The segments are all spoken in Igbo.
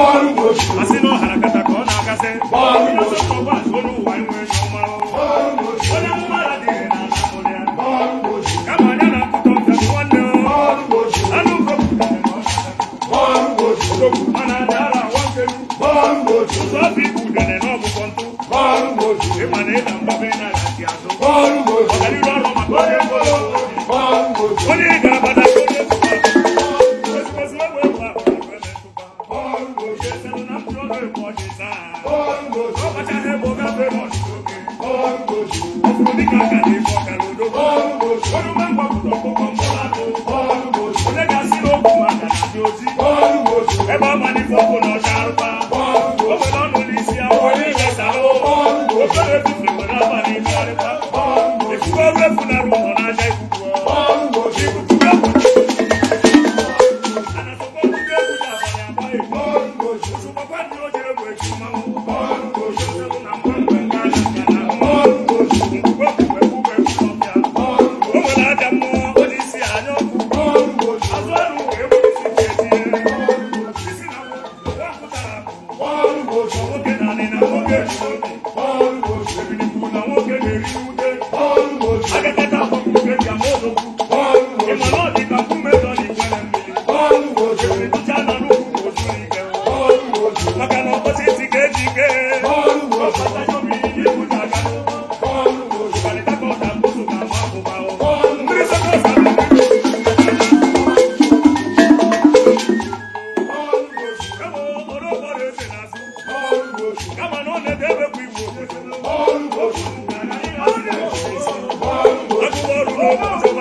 ọrụ na ọ na-agazi ọrụ na anamụlịa ọrụ kama na mana azụ lòdì. bọ́ọ̀lù oṣù. ẹ bá ma ní fọ́fọ́ Oh,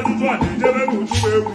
ajụjụ a na-ejere n'uju egwu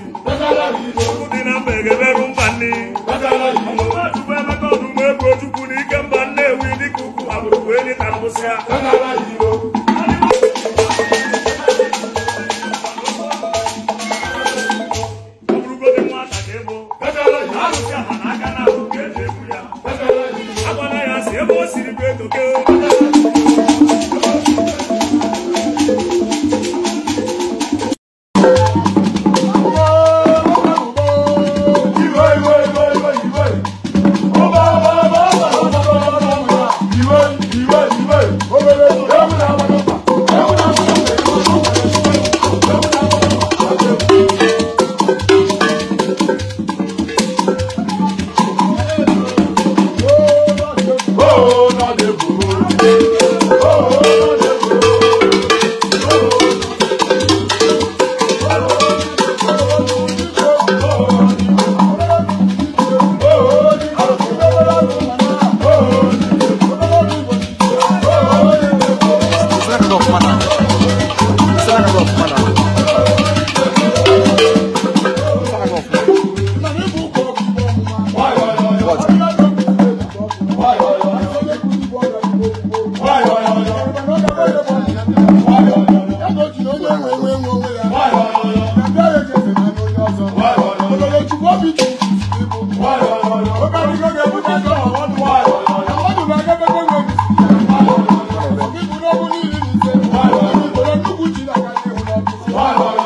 Vai,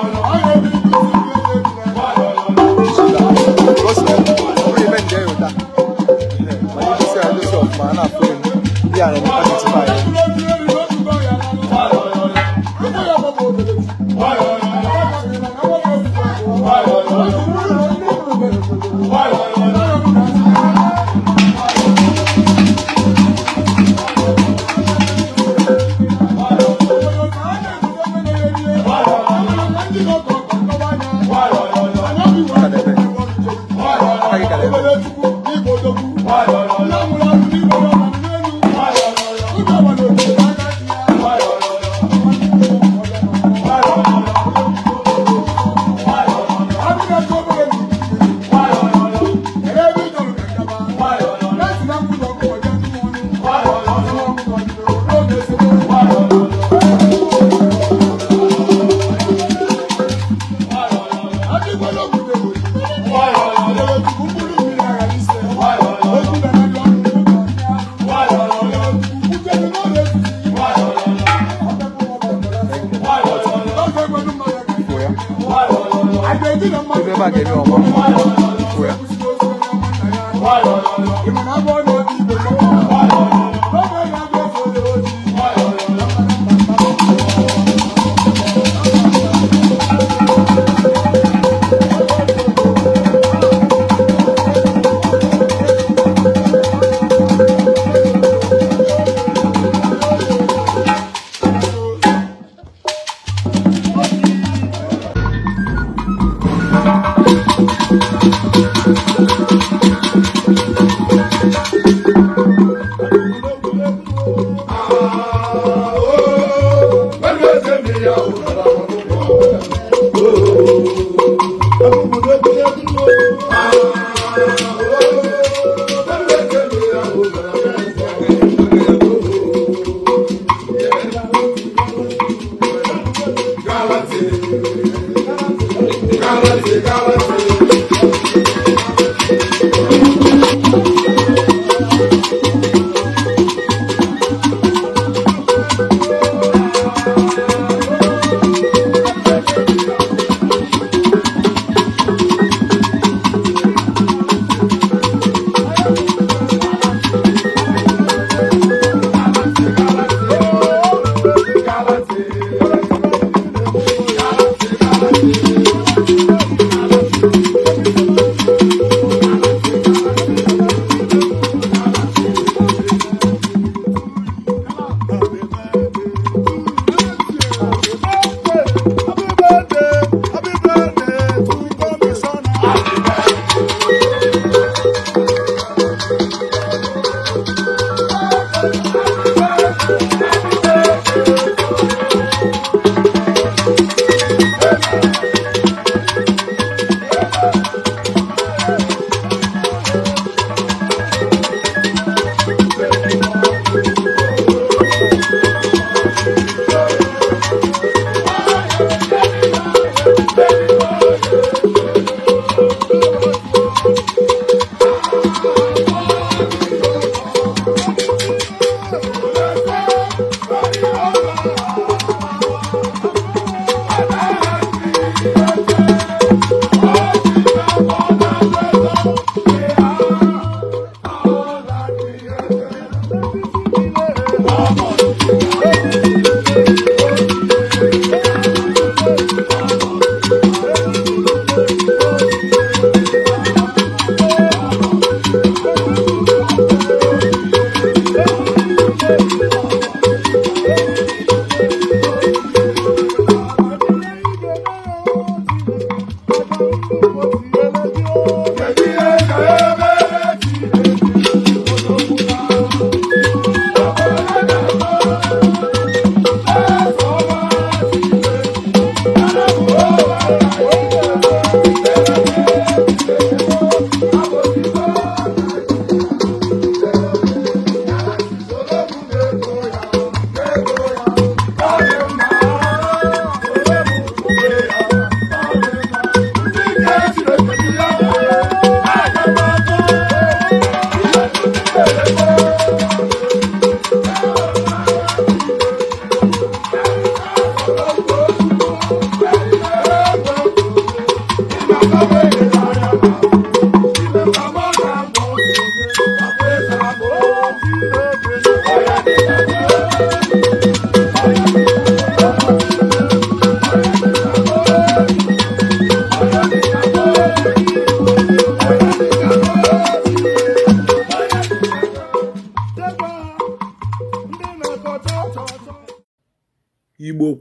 ịbagere ọgba thank you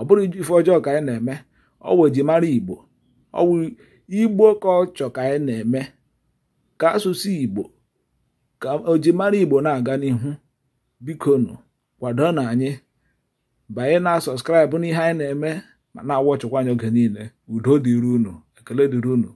ọ bụrụ ife ọjọọ ka anyị na-eme ọ ji mara igbo ọwụ igbo ka ọ ka anyị na-eme ka asụsụ igbo ka ojimara igbo na-aga n'ihu bikonu kwado na anyị banye na sọskraịbụ n'ihe anyị na-eme ma na-awọchịkwa anyị oge niile udo dịrị unu ekele dịrị unu